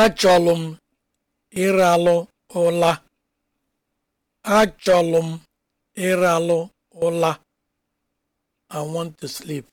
achọlụ m ịralụ ụla achọlụ m ịralụ ụla i want to sleep